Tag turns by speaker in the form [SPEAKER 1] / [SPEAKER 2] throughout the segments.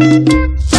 [SPEAKER 1] Thank you.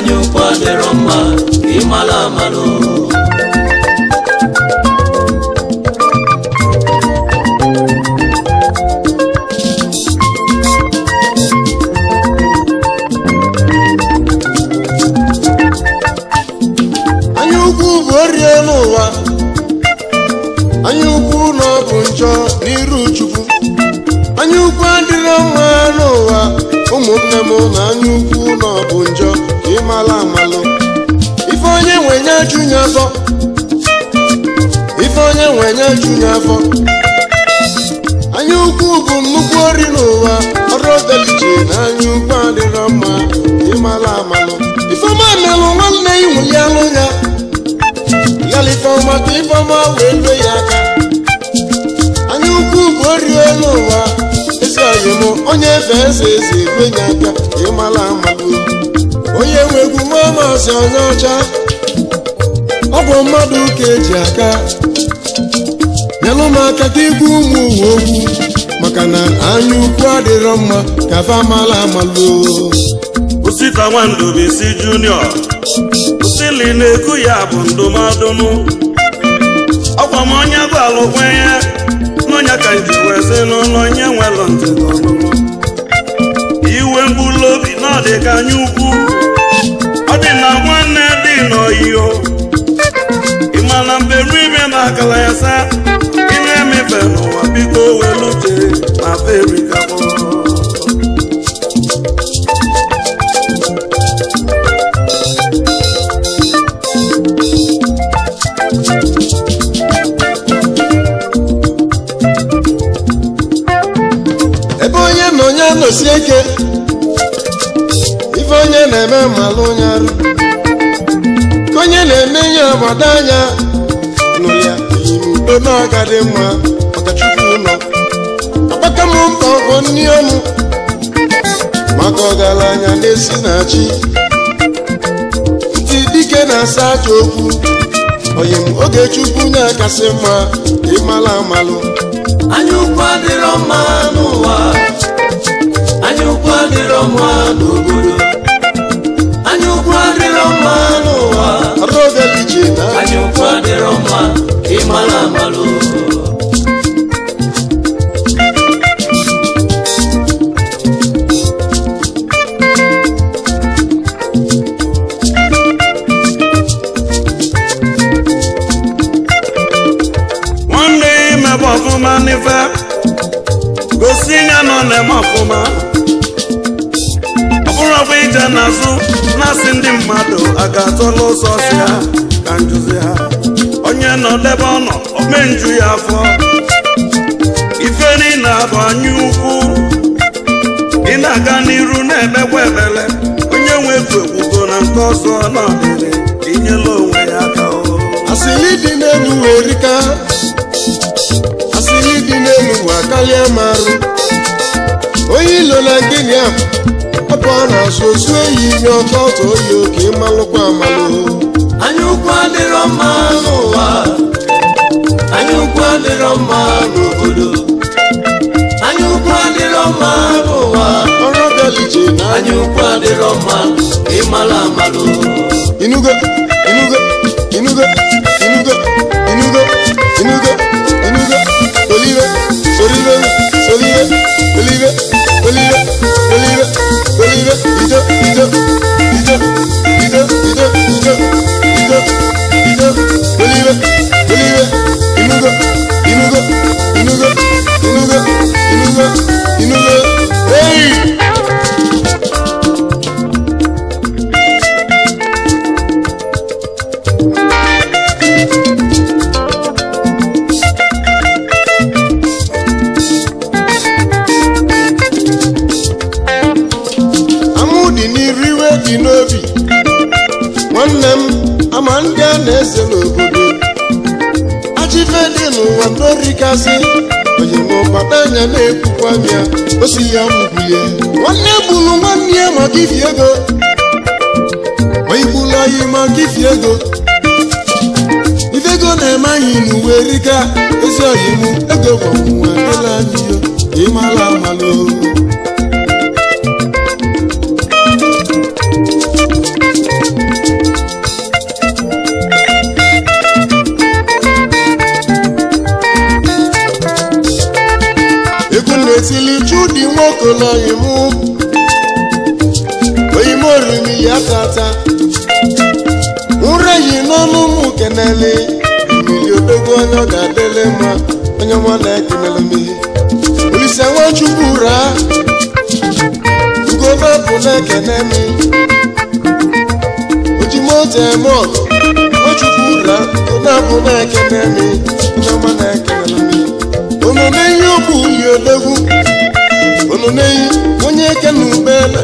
[SPEAKER 2] año na-efe eze eze egwenye aka ịmala amalu onye nwe egwu mamazi onye ọcha ọ bụ mmadụ ka eji aka nyelụ m aka ka igwe ụmụ uwe okwu maka na anya ukwu adịrọ mma ka fa mala amalu osita nwandubisi junior osili na-ekwu ya bụ ndụmadụnụ ọkwa m onye bụ alụkwenye n'ọnya ka nji wee n'ụlọ onye nwelụ ntị n'ọnụ na dị ka anya ukwu ọ dị na nwanne dị n'oyiyo ị ma na mberi ime na akala ya sa ị na-emefe n'ụwa biko welu uche na Afrịka na-abada anya nụ ya udo na-agadị mma ọkachukwu ụlọ akpata m mkpa ọkọ nri ọnụ maka ọgaranya na-esi na chi ntị dike na-asa aja okwu onye m oge chukwu na-akasị mma ịmala amalụ anya ukwu adịrọ mma n'ụwa anya ukwu adịrọ mma n'obodo mma n'ụwa anyụkwu adịrọ mma ịmara amalụ nwanne imebe ọfụma n'ife gosi ya nọ na-eme ọfụma ije n'azụ na-asị ndị mmadụ a ga-atọla ụzọ si ha ka njuzi ha onye nọ debe ọnọ omenju ya afọ ife niile na-abụ anya ukwu ị na-aga n'iru na-emekwa ebele onye nwe egwu na nke ọzọ n'ọdịrị inyela onwe ya aka asịrị dị n'elu wee rika asịrị dị n'elu wa karịa marụ onye ilo na gịnị ahụ ụkwụ ọ na-asụ osu ehi n'ọkọ ọtọ oyi oke malụkwa amalụ anya ukwu adịrọ mma n'ụwa anya ukwu adịrọ mma n'obodo anya ukwu adịrọ mma n'ụwa ọrụ ọbịa lije na anya ukwu adịrọ mma ịmalụ amalụ inugo Yo. asị onye mụpata anya na-ekwukwa m ya o si ya mgbuye nwanne gburu nwanne ya maka ifi ego onye gburu anyị maka ifi ego ife ego na-eme anyị n'uwe rika ezi ọyịmụ ego gbanwe ele anyị ịmala amalụ okolo imu oyimorimi ya tata nre yi n'ọnụ ụmụ kenele mmiri odogwu onye ọ ga-adịle mma onye na-ekeneleme olise nwachukwu raa ugobe bụ na-ekenemi ojimoto eme ọgụ nwachukwu raa unu onye eke na ubele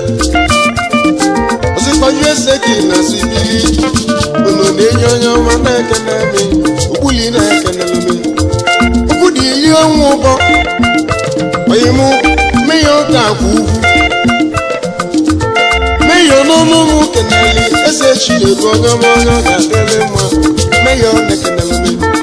[SPEAKER 2] ozikọju eze gị na sibiri unu onye ọma na-ekenemi okpuli na-ekenemi okwu dị ili ọnwa ụbọ oyimụ meya ọka akwa ugwu meya n'ọnụ ụmụ keneli eze chi na-ebu onye ọma onye ọ ga-adịrị mma meya ọ na-ekenemi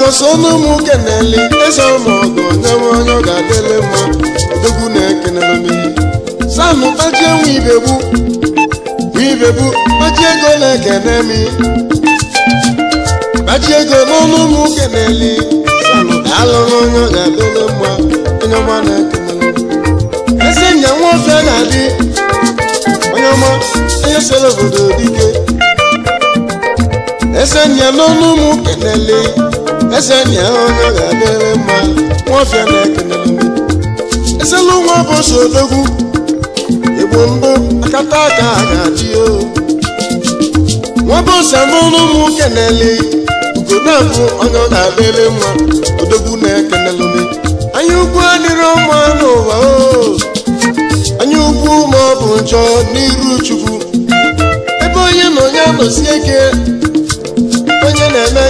[SPEAKER 2] gosinu m keneli eze ọmọgọ nyewe onye ọ ga na-ekenelomiri sanụ ego na-ekene mi ego n'ọnụ m keneli sanụ alụrụ onye ọ ga-adịle mma onye ọma na-ekenelu eze nwoke na obodo dike ese nya n'ọnụ keneli Ese na ya onye ga-adịrị mma nwaọfịa na-ekele ezelu nwa bụ so odogwu igbo mbụ akata aka a ga-achị o nwabụ ose n'ụlọ ụmụ nwoke na-ele ugo na-abụ onye ọ ga-adịrị mma odogwu na-ekelelụme anya ukwu adịrị ọma n'ụwa o anya ukwu ma ọ bụ njọ n'iru chukwu ebe onye na onye anọsi ike onye na-eme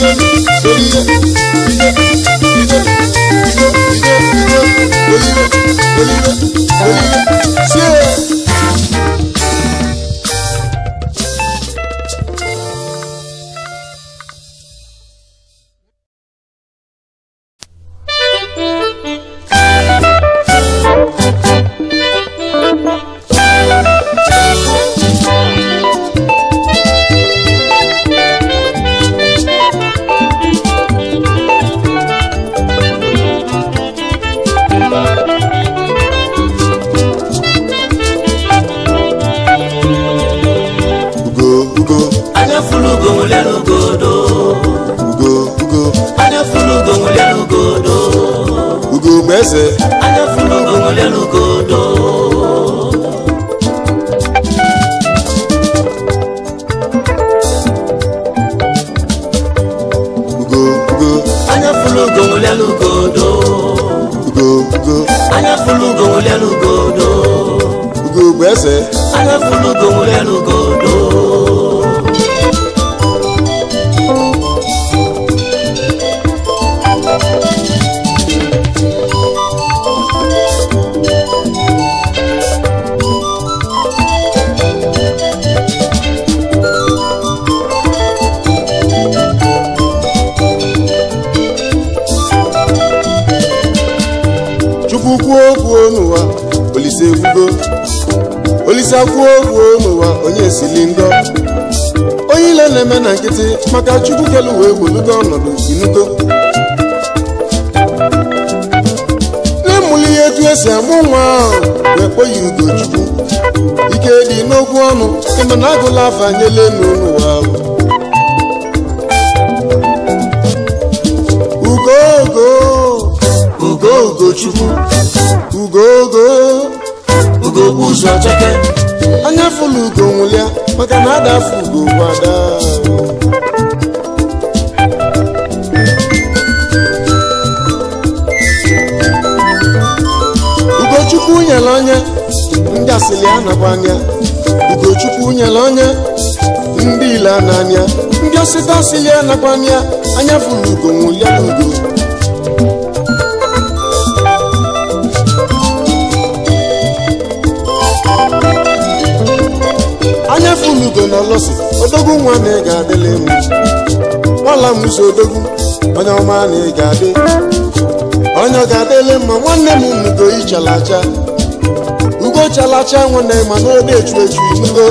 [SPEAKER 2] Thank you. ike si amụ nwa ahụ ekweghị ugochukwu ike dị n'okwu ọnụ na agụla afanyela n'ụwa ugogo ugogo ugochukwu ugogo ugo ụzọ cheke anya fụlụ ugo nwụlịa maka na ada afọ ugo gwada nyere onye ndị asịlị anakwa anya ugochukwu nyere onye ndị ile n'anya ndị osita asịlị anakwa anya
[SPEAKER 1] anya fụrụ ugo ya n'ugo
[SPEAKER 2] anya fụrụ ugo na lọsị odogwu nwa na ị ga-adịla emu ọla m ụzọ odogwu onye ọma na ị ga-adị onye ọ ga-adịla mma nwanne m mugo ichala acha ogochalacha nwe na ịma na obi echu echu ijugo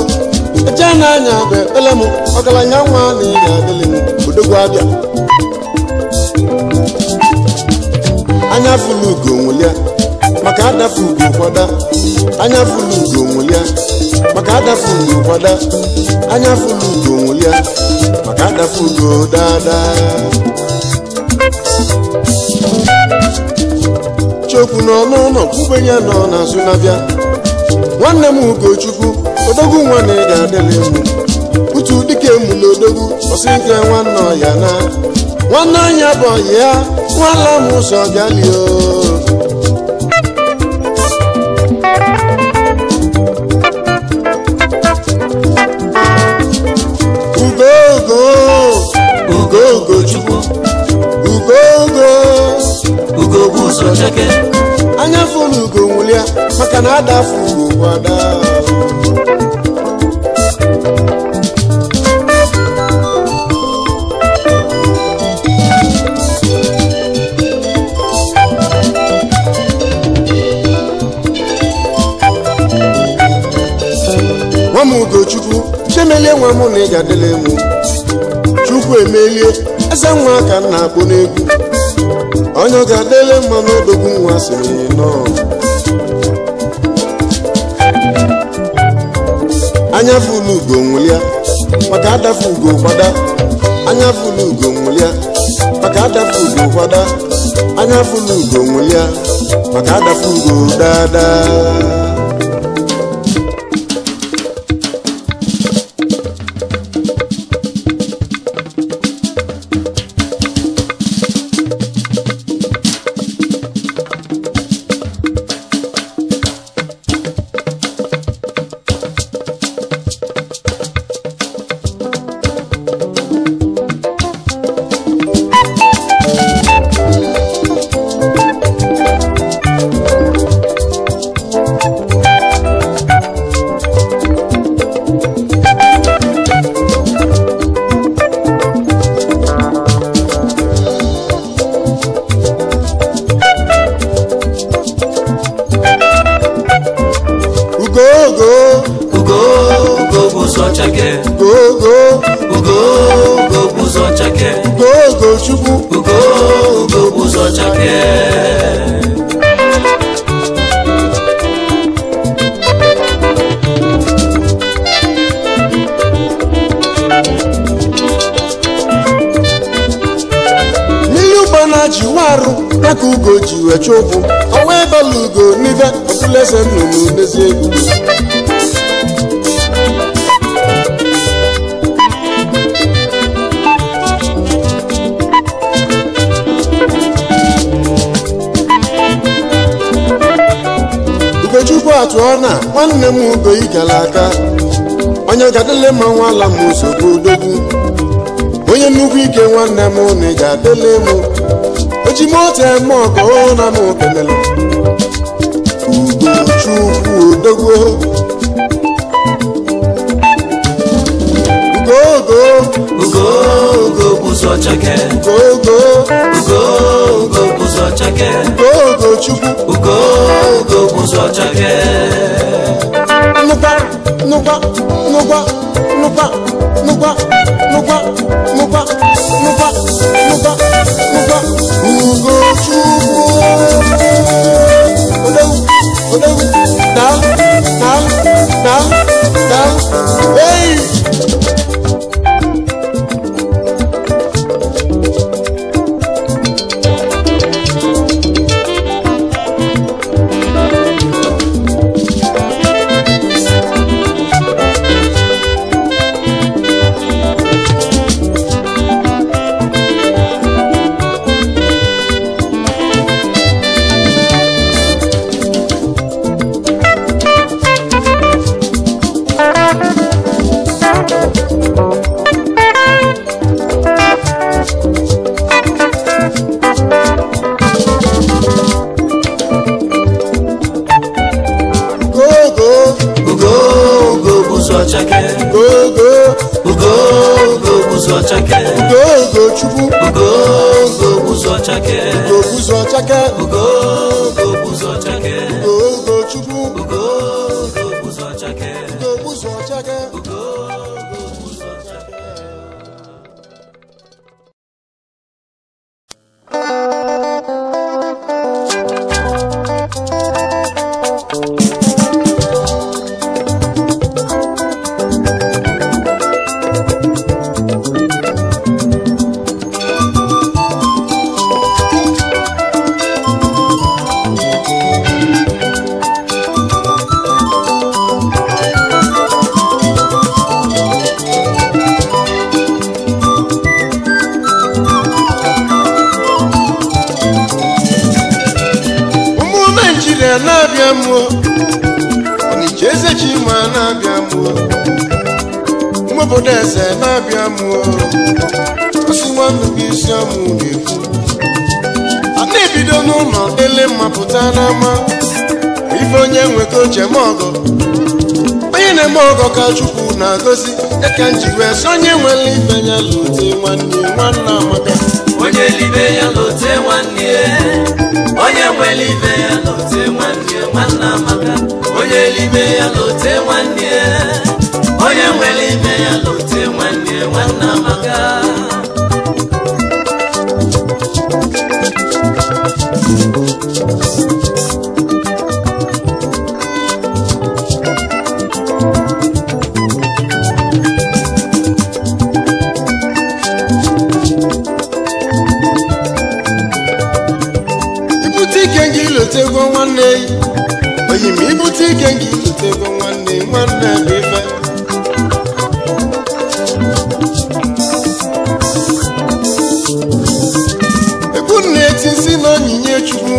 [SPEAKER 2] eche na-anya bụ ekpele m ọgaranya nwa na ị ga-adịlị m odogwu abịa anya fụlụ ugo nwụlịa maka adafu ugo kwada anya fụlụ ugo nwụlịa maka adafu ugo kwada anya fụlụ ugo nwụlịa maka adafu ugo daadaa okwu n'ọnụ ụlọ ya nọ n'azụ na-abịa nwanne m ugochukwu odogwu nwa na ị ga-adịla emu utu dike mụla odogwu ọsị nke nwanne ọya na nwanne anya bụ ọya ya nwala m ụzọ galio
[SPEAKER 1] ugogo ugo
[SPEAKER 2] Chukwu ugogo ugo bụ ụzọ cheke fụlụ ugo maka na adafu ugo ada nwa m ugochukwu chemele nwa m na ị ga-adịla chukwu emelie eze nwa ka m na agbọ n'egwu onye ọ ga-adịle mma n'odogwu nwa sịrị nọ anya fụlụ ugo nwụlịa maka adafu ugo gbada anya fụlụ ugo nwụlịa maka adafu ugo gbada anya fụlụ ugo nwụlịa maka adafu ugo daadaa Ugochake Ugo
[SPEAKER 1] Ugochukwu Ugo Ugo Uzochake
[SPEAKER 2] n'ihe ụgbọ na-achị warụ ya ka ugo ji wee chụpụ ọnwa ebela
[SPEAKER 1] ugo n'ife ọkụlese nnụnụ n'ezi egwu
[SPEAKER 2] Robert Rona nwanne m Ugoyi gara aka onye ga-adịle ma nwala m nsogbu odogwu onye nnukwu ike nwanne m na ị ga-adịle m oji eme ọka na m okenele Ugochukwu odogwu ugogo ugogo ugogo ụzọ chake ugogo chukwu chake nụkwa nụkwa nụkwa nụkwa nụkwa nụkwa nụkwa nụkwa
[SPEAKER 1] nụkwa nụkwa chukwu
[SPEAKER 2] ọgọ onye na-eme ọgọ ka chukwu na-agọzi eke m ji onye nwere ibe ya lute nwanne nwanne amaka onye libe ya lute nwanne onye nwere ibe ya lute nwanne nwanne amaka onye libe ya lute nwanne onye
[SPEAKER 1] nwere ibe ya lute nwanne nwanne amaka Thank you.
[SPEAKER 2] esi ike gị bụ nwanne nwanne bụ ife ekwu na-eti si na onyinye chukwu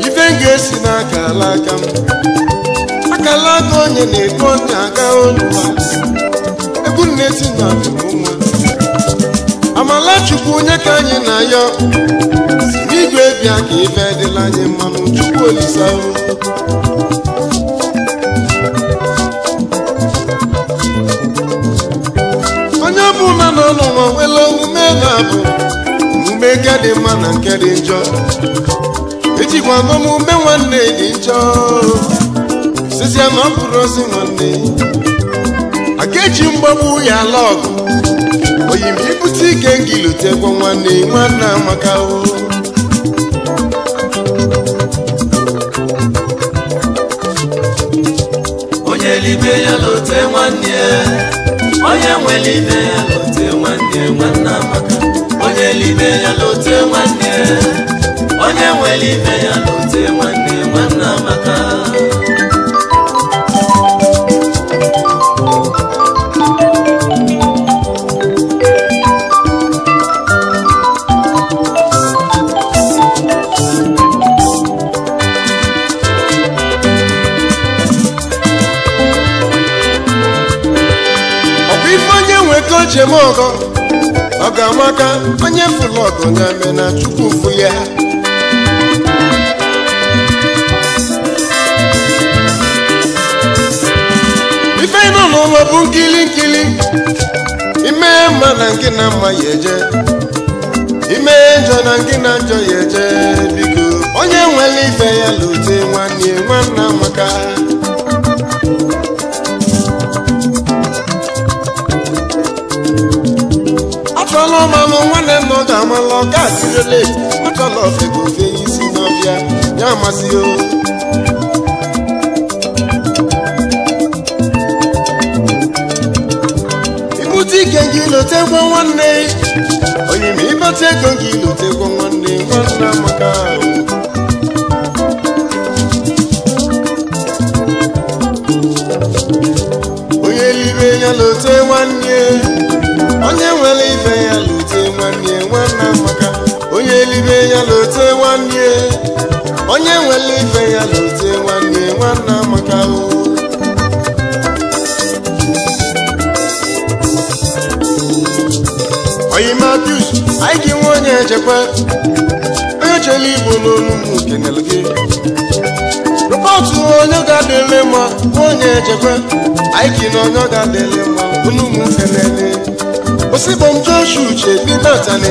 [SPEAKER 2] ife ga-esi n'aka ala aka m akala aka onye na-ekpe onye aga onye ekwu na-eti na nwa amala chukwu onye ka anyị na-ayọ bịa ka ife dịla anyị mmanụ chukwu olisa onye ọbụla nọ n'ụwa nwere omume na-abụ omume nke dị mma na nke dị njọ ejikwa ume nwanne dị njọ sizie na ọ ozi nwanne aka eji mgbagbu ya ala ọgụ oyi m ibute ike ngilute nwanne nwanne amaka o nwere ya lote nwanne ya onye nwere ibe ya lote nwanne nwanne maka onye libe ya lote nwanne onye ya nwanne maka. amaka Uchemogo ọ ga-amaka onye fụlụ ọgụ na chukwu fụ ya ife nọ n'ụlọ bụ nkili nkili ime mma na nke na mma ya eje ime njọ na nke na njọ ya eje biko onye nwere ife ya lute nwanne nwanna amaka ọmalụ nwanne m nọ ga-amalụ ọka asirele makalọfego ofe isi n'ọbịa ya amasị o ibute ike gị lotekwa nwanne onyime ibute ego gị lotekwa nwanne nwanne amaka onye lire ya lote nwanne onye nwere ibe ya elibe ya lote nwanne onye nwere ife ya lote nwanne nwanne amaka o oyi matius anyị gị nwe onye echekwa onye chere igbo n'olumụ kenel gị rụpọtụ onye ga-adịle mma onye echekwa anyị gị na onye ga-adịle mma olumụ kenele osigbo m joshu uche dị natani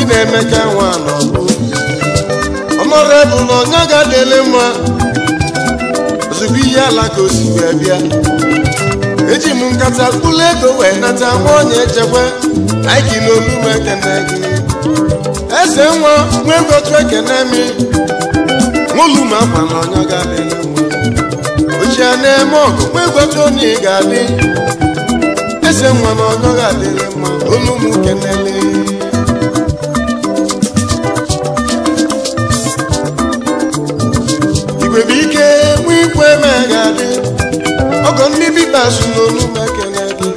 [SPEAKER 2] ị na-emecha nwa n'ọbụ ọmọrọ bụ na onye ga-adịle mma ozugbo ihe ala ka osikwe bịa eji m nkata kpụlụ ego wee nata nwa onye echekwe naiki n'olu m ekene gị eze nwa nwee ngotu ekene mi nwolu m akwa na onye ga-adịle mma ochie na-eme ọgụ nwee ngotu onye ga-adị eze nwa na onye ga-adịle mma olu m kenele na-asụ n'olu m ekele gị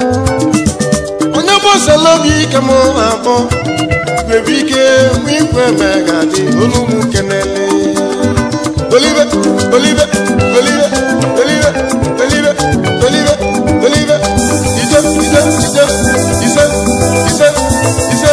[SPEAKER 2] onye gbasara obi ike m na-akpọ nwere ike mụ ikwe ma ga-adị olu m kenele olive olive olive olive olive olive olive ise ise ise ise ise ise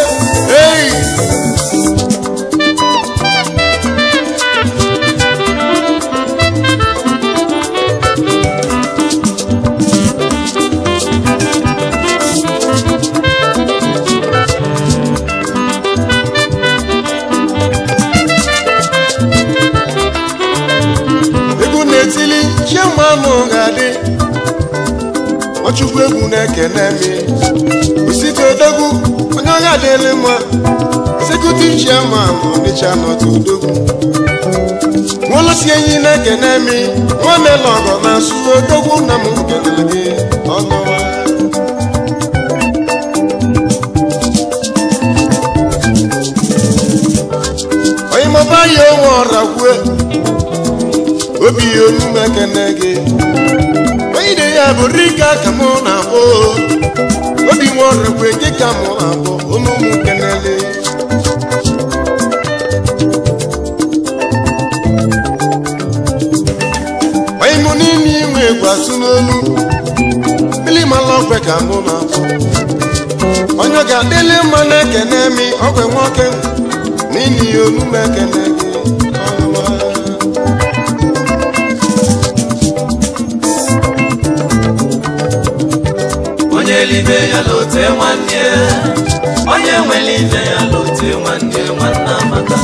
[SPEAKER 2] chukwu egwu na-ekene m osite odogwu onye ọha mma ọdịcha
[SPEAKER 1] odogwu
[SPEAKER 2] na-ekene m nwamelọgọ na asụ odogwu na m gị onye ya onwe ọra kwue obi ya gị ide ya bụ rika ka mụ na-akpọ obi nwaọrụkwe gị ka mụ na-akpọ abụ olụmụ kenele onye mụ niile inwe gwasụ n'olu mmiri mala ọkwe ka mụ na abụ onye ga-adịli mma na-ekene mi ọkwe nwoke n'ihi olume ekene gị nwere ibe ya lote nwanne onye nwere ibe
[SPEAKER 1] ya lote nwanne nwanna maka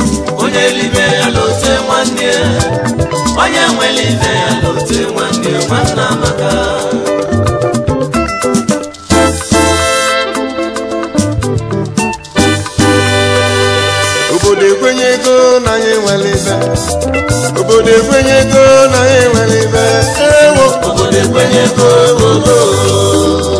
[SPEAKER 1] onye libe ya lote nwanne onye nwere ibe ya lote nwanne nwanna maka
[SPEAKER 2] obodo ekwenye ego anyị obodo
[SPEAKER 1] ekwenyego na anyị nwere ibe ewo obodo ekwenyego obodo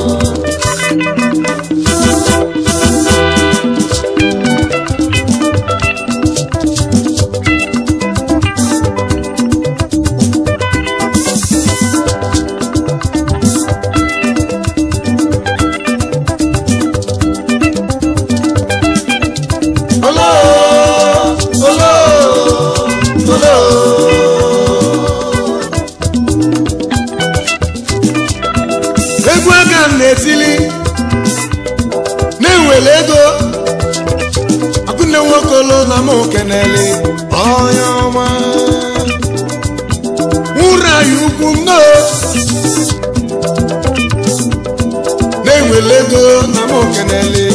[SPEAKER 2] kenele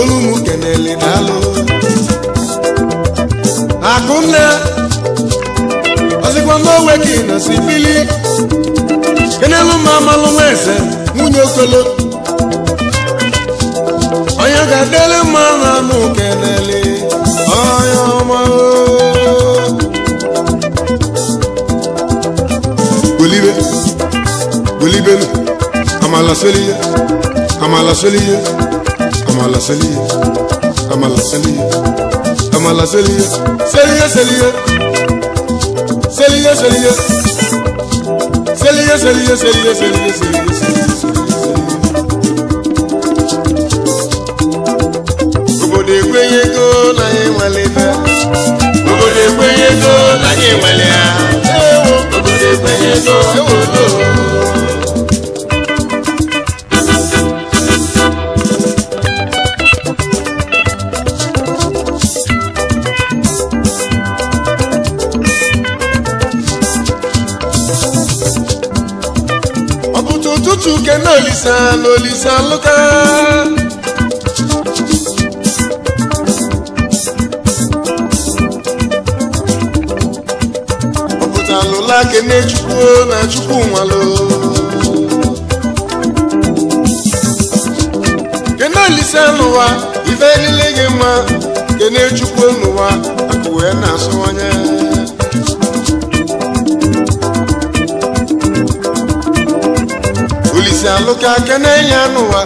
[SPEAKER 2] olu m kenele daalụ akụnne ọzịkwa n'owe ka ị nọsi bili kenelu ma amalụ nwa eze nwunye okolo onye ga-adele mma na anụ kenele onye ọma bulibe bulibelu amala seli amala selie amala selie obodo ego obodo ego obodo ego olisa na olisa lụka ọ pụtalụla kene chukwu na chukwu nwalụ kene olisa n'ụwa ife niile gị mma kene chukwu n'ụwa akụ wee na-asụwanye alụ ka kene ya n'ụwa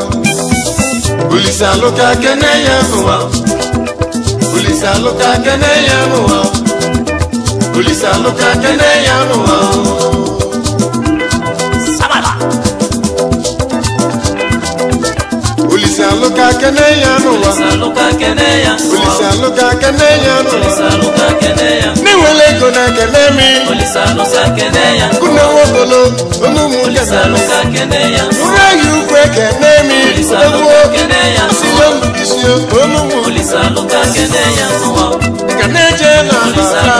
[SPEAKER 2] kene kene alụka kene ya n'ụwa olise alụka kene ya n'ụwa na-enwele ego kene mi kune ya onumụkene ụrụ ehi ukwe kene mi egwu silombisie onumụ kene je na ala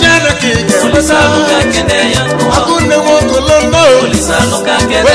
[SPEAKER 2] jere ka ị ga-enweta akụ nne nwokolo nnọọ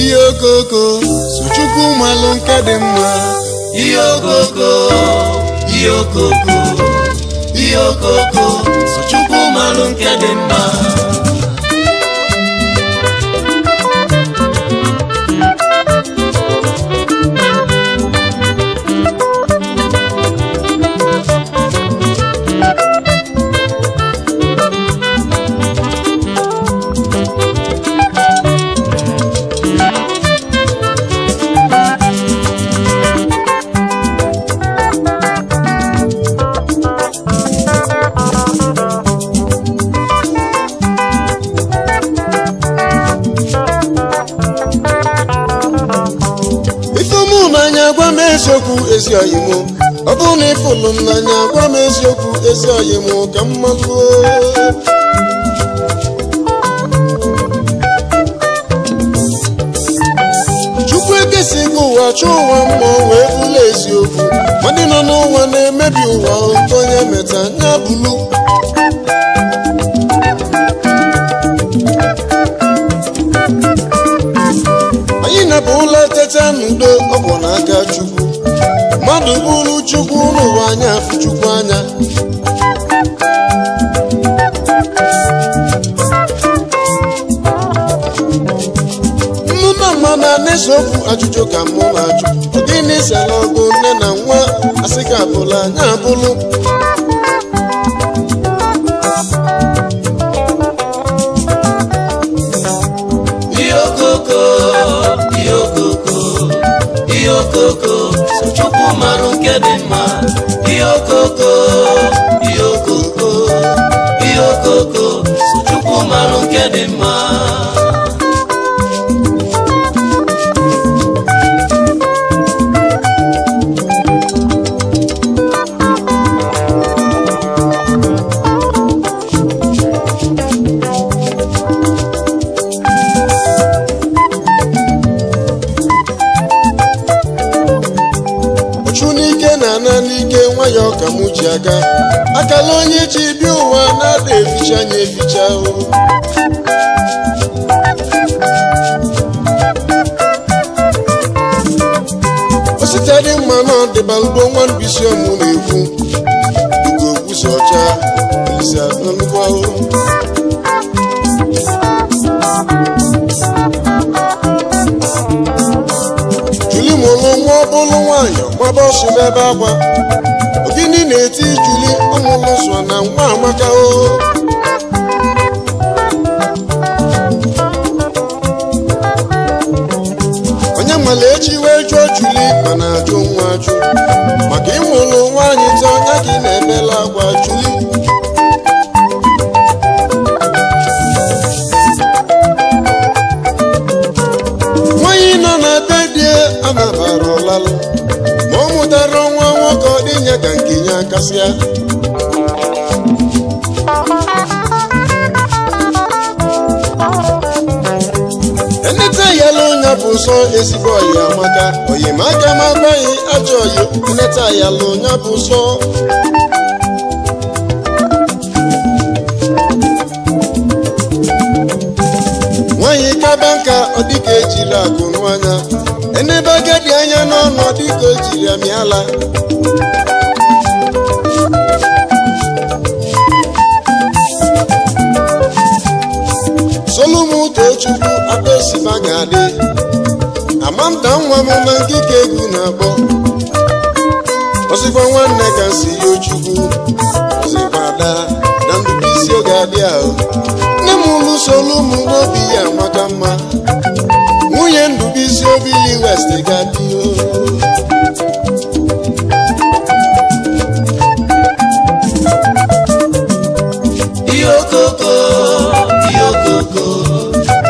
[SPEAKER 1] ihe okoko
[SPEAKER 2] so chukwu malụ nke dị mma ihe okoko ihe okoko
[SPEAKER 1] ihe okoko so chukwu malụ nke dị mma
[SPEAKER 2] ezi oyi ọ bụrụ na ịfụnụ m n'anya gwa m eziokwu ezi oyi ka m malụo chukwu ekesi gị ụwa chọọ ụwa mmụọ wee bụla eziokwu ndị nọ n'ụwa na-emebi ụwa nke onye meta ya bụlu anyị napụ ụlọ teta n'udo ọ bụ n'aka mmadụ bụrụ chukwu n'ụwa anya afọ chukwu anya mụna mma na n'eziokwu ajụjụ ka mụ na-ajụ ọ gịnị ọgụ nne na nwa asị ka abụla anya abụlụ
[SPEAKER 1] okoko yokoko, okoko. marụ nke dị mma ihe okoko ihe okoko ihe chukwu marụ nke dị mma
[SPEAKER 2] eji aka akala onye ji bịa ụwa na-ada eficha anya eficha osite dị mma na ọdịbalụgo nwa mbisi ọmụ na-ekwu
[SPEAKER 1] dịka ọcha isi atọ nnukwu ahụhụ
[SPEAKER 2] juli mụlụ nwa ọ nwaanyị gbaba ọsụ n'ebe agwa ọmụ mụsọ na nwa amaka o gasịa enete yala onye bụ nsọ ezigbo oyi amaka oyimaka ma agbaghị ajọ oyi enete yala onye bụ nsọ nwaanyị kaba nka ọ dịka ejiri akụ nụ anya enebe agadi anya n'ọnụ ọ dịka o jiri amịala chukwu akpesiba ga-adị amamta nwa m na nkike egwu na-akpọ ozigbo nwanne ka si ya ochukwu ozibada na ndubu isi oge adị ahụ nne m lụsolu ụmụ n'obi ya maka mma nwunye ndubu isi obili west ga-adị oh.
[SPEAKER 1] ihe okoko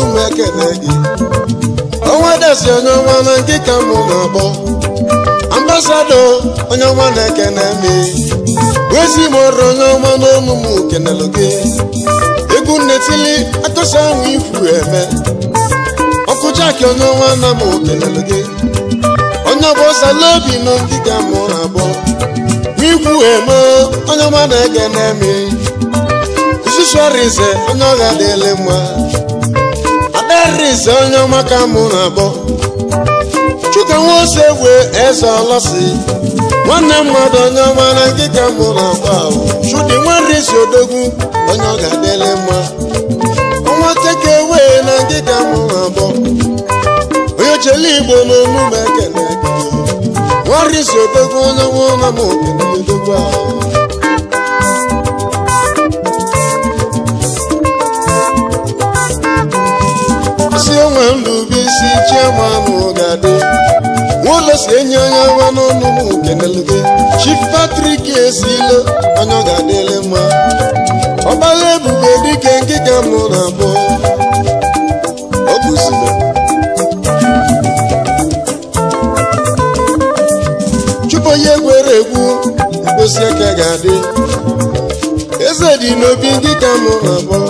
[SPEAKER 2] olu m gị ọnwa dasi onye ọma na nke ka mụ na-akpọ ambasado onye ọma na-ekene me wezi m ọrụ onye ọma n'ọnụ m kenelụ gị egwu nnetili atụsa ahụ ifu eme ọkụ jaki onye ọma na m kenelụ gị onye ọbọsala obi na ndị ka mụ na-abọ n'ikwu eme onye ọma na-ekene Isusu nsusuarize onye ọha dịle mma ise onye mụ na-akpọ chuka nwa ose eze nwanne mmadụ onye na nke ka mụ na ahụ odogwu onye ọ ga mma ọnwa teke na nke ka mụ na onye igbo na na m onwe nrubeisi chiama ahụ ga-adị nwaụlọ si enye onye nwa n'ọnụ m kenelụgị Chief Patrick esile onye ọ ga-adịle mma ọgbala ebube dike nkịka mụ na abụọ ọ bụzile chụpụ onye gwere egwu mkposi aka ga-adị eze dị n'obi nkịka mụ na abụọ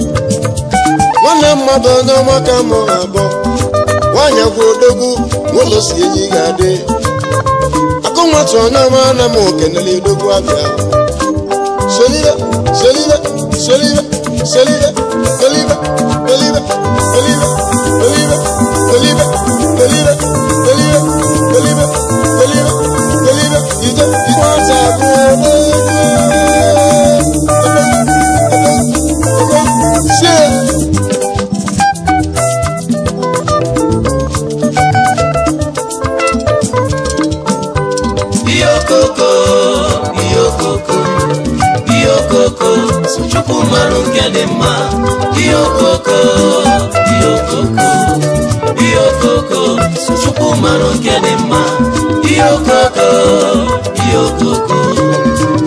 [SPEAKER 2] nwanne mmadụ onye ọma ka mụ na-akpọ nwaanyị agwa odogwu n'ụlọ si enyi ga-adị akụnwatụ onye ọma na m okenele odogwu abịa solive solive
[SPEAKER 1] asụ chukwu marụ nke dị mma ihe okoko ihe okoko ihe okoko sụ chukwu marụ nke dị mma ihe okoko ihe okoko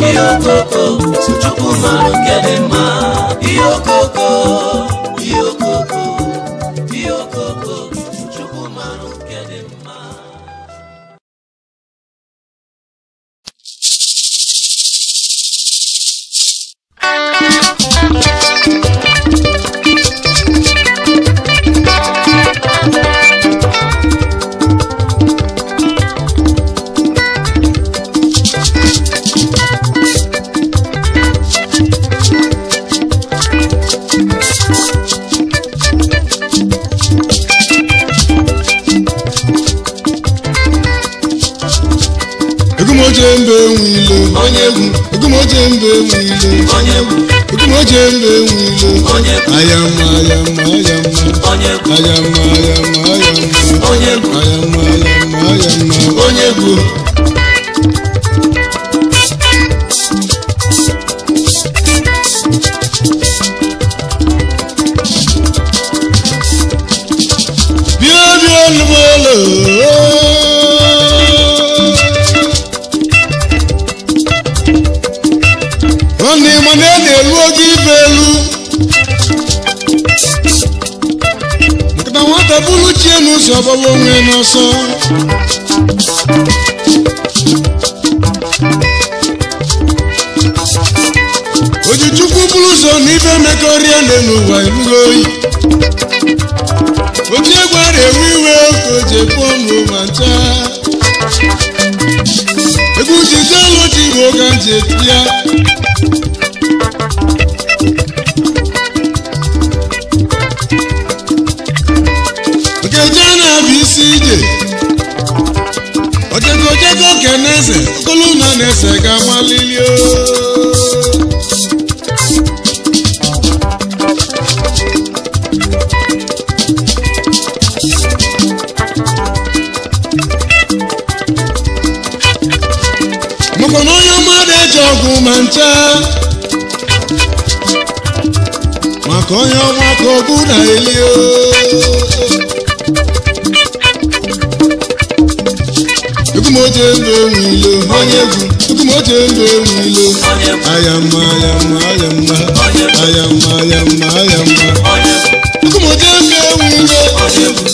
[SPEAKER 1] ihe okoko sụ chukwu marụ nke dị mma ihe onye bụ ndị
[SPEAKER 2] mana e na-elu ogo ibe elu nkịta bụrụ onwe ọsọ oji chukwu bụrụ ụzọ n'ibe mekọrịa nne n'ụwa oyi ẹsẹ̀ ga
[SPEAKER 1] mọ́ lílé o.
[SPEAKER 2] mọ̀kànlá onye mmadụ eji ọgwụ na eli o. chendo erilo ayama ayama ayama ayama ayama ayama ụmụdị eze enwe ile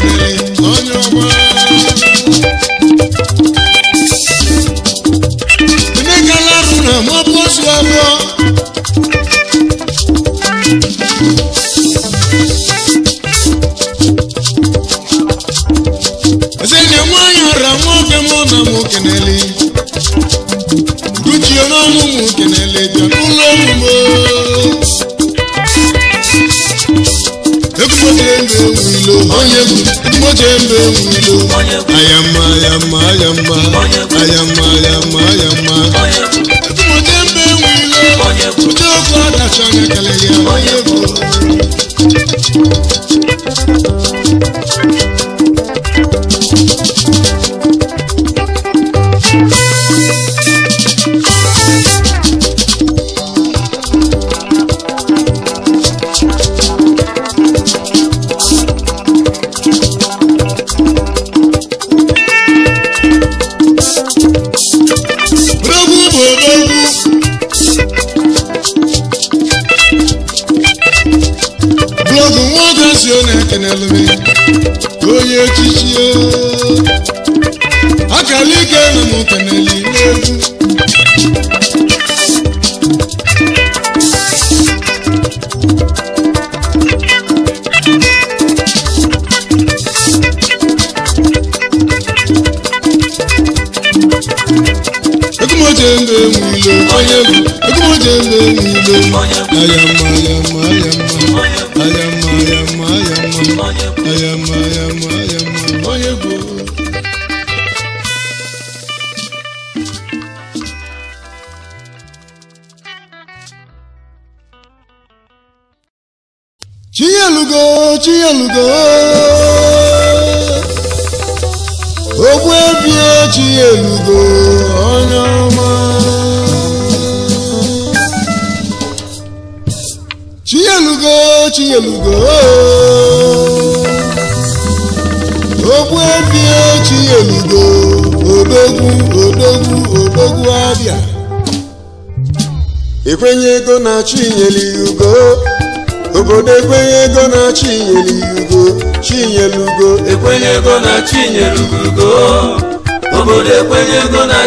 [SPEAKER 2] àyàmà àyàmà àyàmà àyàmà àyàmà àyàmà. mo jẹ́ mbẹ́ wí lọ mo jẹ́ ọkọ̀ àdàtọ̀ àgàkẹ́lẹ́. n'elu onye echichi akara ike na mụta n'elu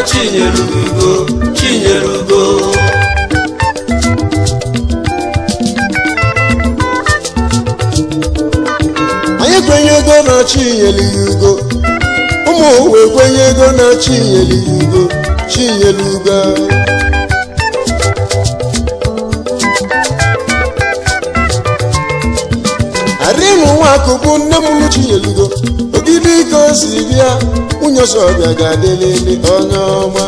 [SPEAKER 2] chinyere ugo
[SPEAKER 1] chinyere ugo
[SPEAKER 2] anyị kwenyego na chinyere ugo ụmụ owe ego na chinyere ya ugo chinyere ugo arịnụ nwa akụ bụ nne m chinyere ugo dịka o si bịa nwunye ọsọbịa ga-adịlịlị onye ọma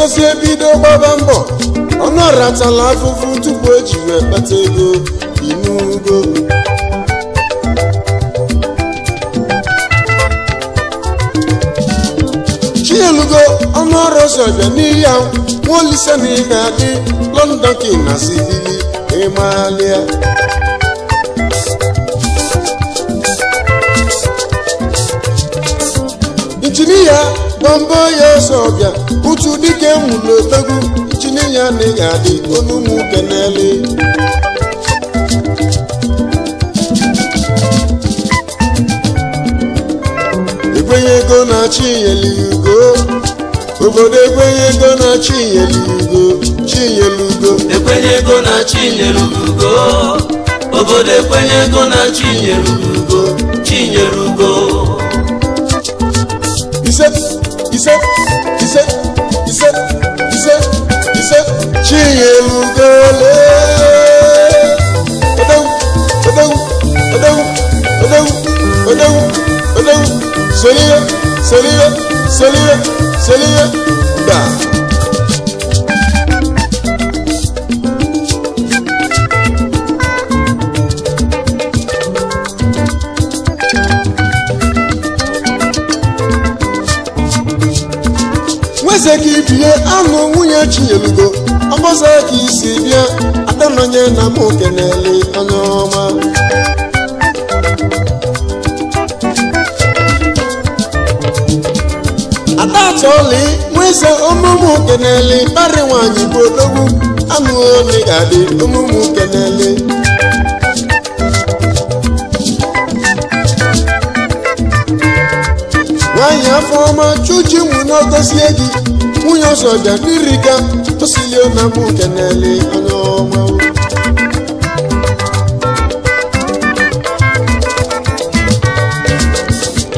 [SPEAKER 2] sosi ebido gbaba mbọ ọnụ afọ afụfụ tupu eji wee kpata ego inugo chielugo ọnụ ọrụ ụzọ bịa n'ihi nwa olise na ime adị London ki na sibili ịmalịa injinia gbambo ya ọsọbịa utu dike nwụrụ otego chine ya na ya dị adị onu ụmụ kenele ekwenye ego na-achị inyeliugo obodo ekwenye ego na-achị inyeliugo chinyelugo ekwenye ego na-achị inyelugo obodo ekwenye ego na-achị inyelugo chinyelugo ise ise ise ise ise Chinyerugole. Odewu odewu odewu odewu odewu odewu soliye soliye
[SPEAKER 1] soliye soliye gbaa.
[SPEAKER 2] eze ka ibie anụ nwunye chinyelugo ọgbọzọ ka isi bịa adanọnye na m ele anya ọma atatọli nweze ọmụmụ kenele parị nwanyị bụ odogwu anụ ole ga-adị ọmụmụ na-ele. nwaanyị afọ ọma chuji mụ na ogozie gị nwunye bịa n'iriga osilie na mbụ nke na-ele anya ọma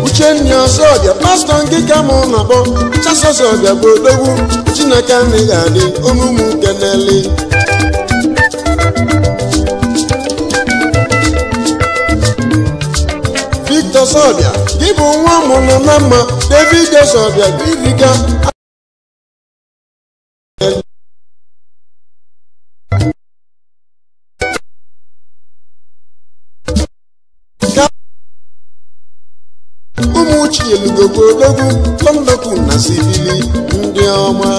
[SPEAKER 2] uchenna bịa pastọ nke ka mụ na-akpọ chasa bịa bụ odogwu chineke anaghị adị omume nke na-ele
[SPEAKER 1] Victor bịa gị bụ nwa mụrụ na mma David ọzọbịa iriga
[SPEAKER 2] na sibili ndị ọma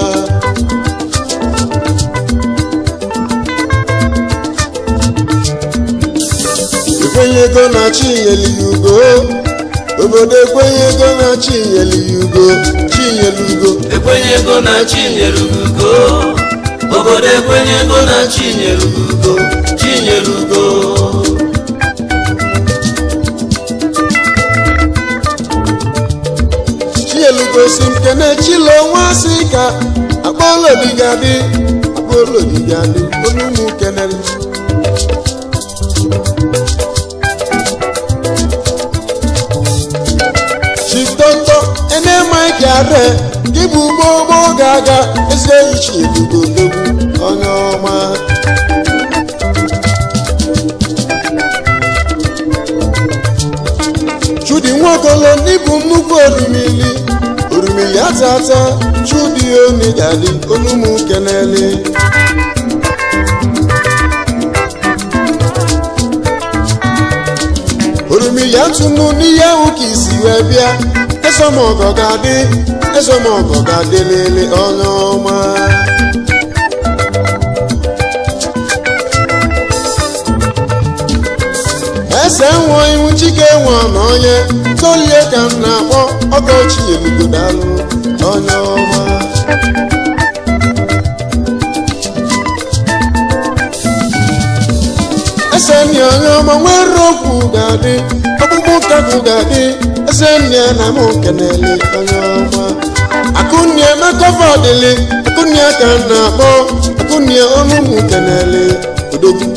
[SPEAKER 2] ekwenyego na chi ugo obodo ekwenyego na chi nyeli ya ugo chi nyeli ekwenyego na chi ugo obodo ekwenyego na chi nyeli ugo chi ugo gosi nke na-echila onwe asị ka akpọlodigadị akpọlodigadị onye ụmụ kenere chitoto enemike ade gị bụ gbogbo ga-aga eze iche ebubo onye ọma chudi nwokolo n'ịbụ nnukwu odumili riri atata chudionigali olumukenele orimiya tunu níyàwó kì í sì wẹ bíà ẹsọmọgọgadé ẹsọmọgọgadé lélẹ ọlọmọ. ẹsẹ̀ ń wọ ihun chike wọn náà yẹn. solie ka m na-akpọ ọka ochie dalụ onye ọma eseni onye ọma nwere okwu ga-adị ọkpụkpụ ụkagụ ga-adị eseni na m kenele onye ọma akụnye mekọva akụnye ka m na-akpọ akụnye ọnụ m ele odogwu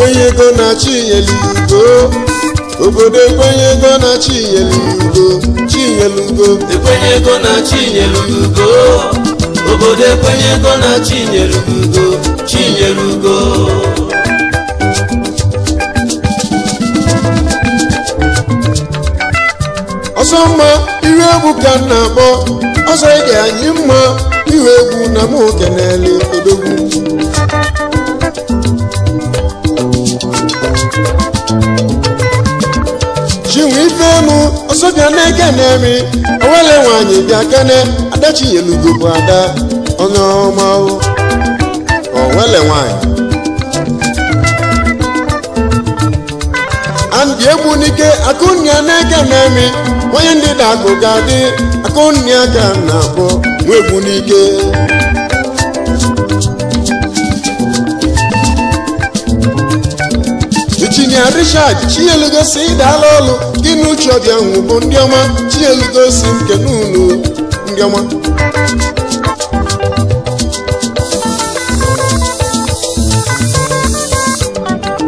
[SPEAKER 2] ekwenyego na chinyelu ugo obodo ekwenyego na chinyelu ugo chinyelu ugo ekwenyego na chinyelu ugo obodo ekwenyego na chinyelu ugo ọsọ mma iru egwu ka m na-akpọ ọsọ ige anyị mma iru egwu na m okenele odogwu n'emu ọsọbịa na-eke na-eri onwere nwanyị bịa kene adachielugo bụ ada onye ọma onwere nwanyị andị egbu n'ike akụnnia na-eke na-emi onye ndị na-akụ ga-adị akụnịa ka na-akpọ n'ike na richard chielugosi ịdaala ọlụ gị na uche ọbịa ahụ ndị ọma chielugosi nke n'ụlọ ndị ọma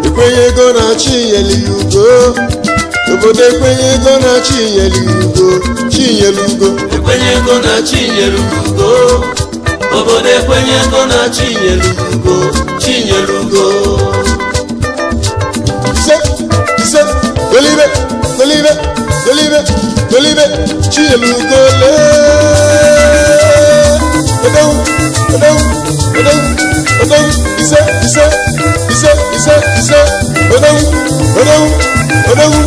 [SPEAKER 2] ekwenye ego na-achị iyeli ya obodo ekwenye ego na-achị iyeli ya ugo chinyere ugo ekwenye ego na-achị inyere ugo obodo ekwenye ego na-achị inyere ugo chinyere ugo Tolíbé Tolíbé Tolíbé Tolíbé Chielu Tolé. Odòwú Odòwú Odòwú Odòwú Iṣẹ́ Iṣẹ́ Iṣẹ́ Iṣẹ́ Iṣẹ́ Odòwú Odòwú Odòwú.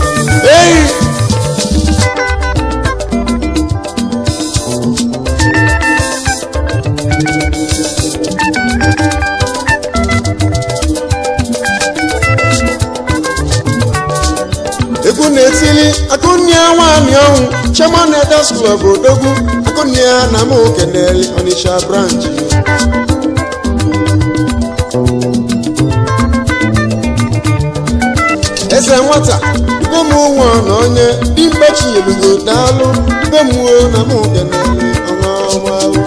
[SPEAKER 2] school ọbụrodogwu akụnia na mokeneli Onitsha branch eze nwata mụnwa na onye dimgbe chinyelụgo daalụ mgbe na mokeneli ọnwa ọgbalụ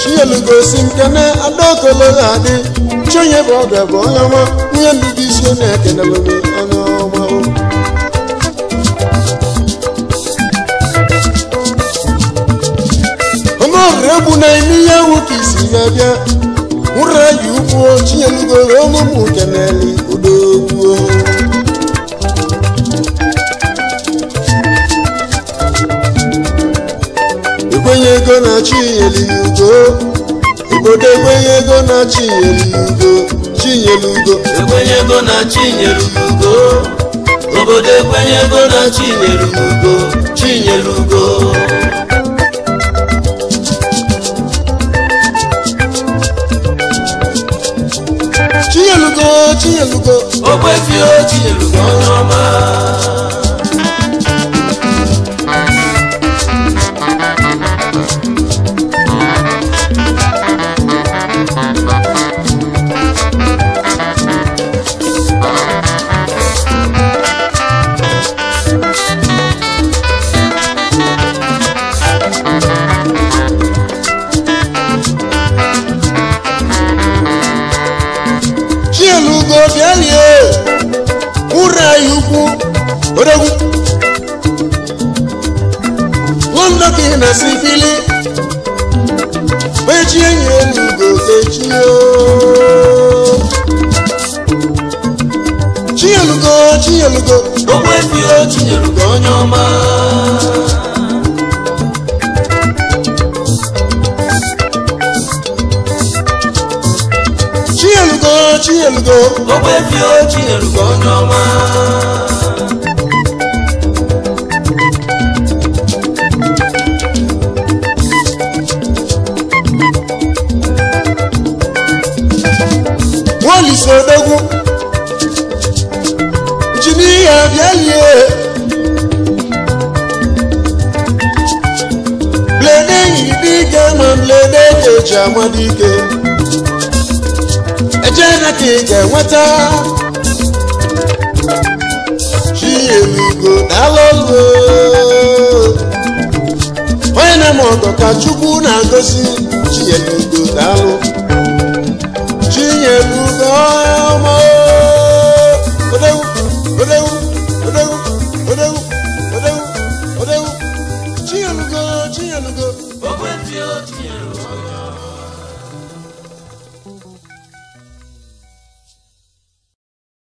[SPEAKER 2] chinyelugo si nkene adaokololadi ọchị onye bụ ọga bụ onye ọma nwunye ndụ dị isi onye ekenebe onye ọma onye ọrịa egwu na-eme ihe ewu ka isi wee bịa ụra ji ukwu chinyelugo wee n'ụmụ nke na-eli udo gwuo ekwenye ego na chi nyeli ugo obodo ekwenye ego na chinyelugo chinyelugo ekwenye ego na chinyelugo obodo ekwenye ego na chinyelugo chinyelugo chinyelugo chinyelugo ogwefio ọmọ. Chielugo Chielugo. Gbogbo efi o Chielugo n'ọma. Wọ́n lè sọ ọdọ́gún. Jimmy Abiel. ụbọchị amadike eje na ka ị ga-enweta chielugo daalụgo onye na-eme ọgọ ka chukwu na-agọzi chielugo daalụ chinyelugo